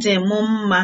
dị m mma.